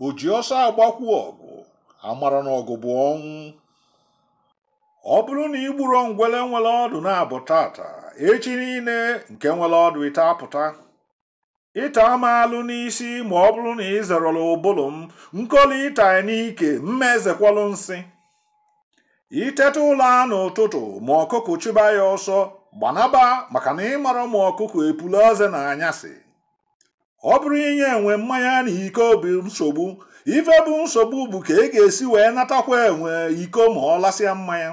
o ji ọsọ agbakwu ọgụ amara na ọgụ bụ ọnwụ ọ bụrụ na igburo ngwele nwere ọdụ na-abụ tata echi niile nke nwere ọdụ ite apụta ịta alụ n'isi ma ọ bụrụ na ị zerọla ụbụlụ m nkoli ịta n'ike mmezekwalụ nsị iteta ụlọ a n'ụtụtụ ma ọkụkụ chụba ya ọsọ gbanaba maka na ịmara ma ọkụkụ epula ọze na anyasị ọ bụrụ inye enwe mmanya na iko bụ nsogbu ife bụ nsogbu bụ ka ị e ga-esi wee natakwa enwe iko ma ọ lasịa mmanya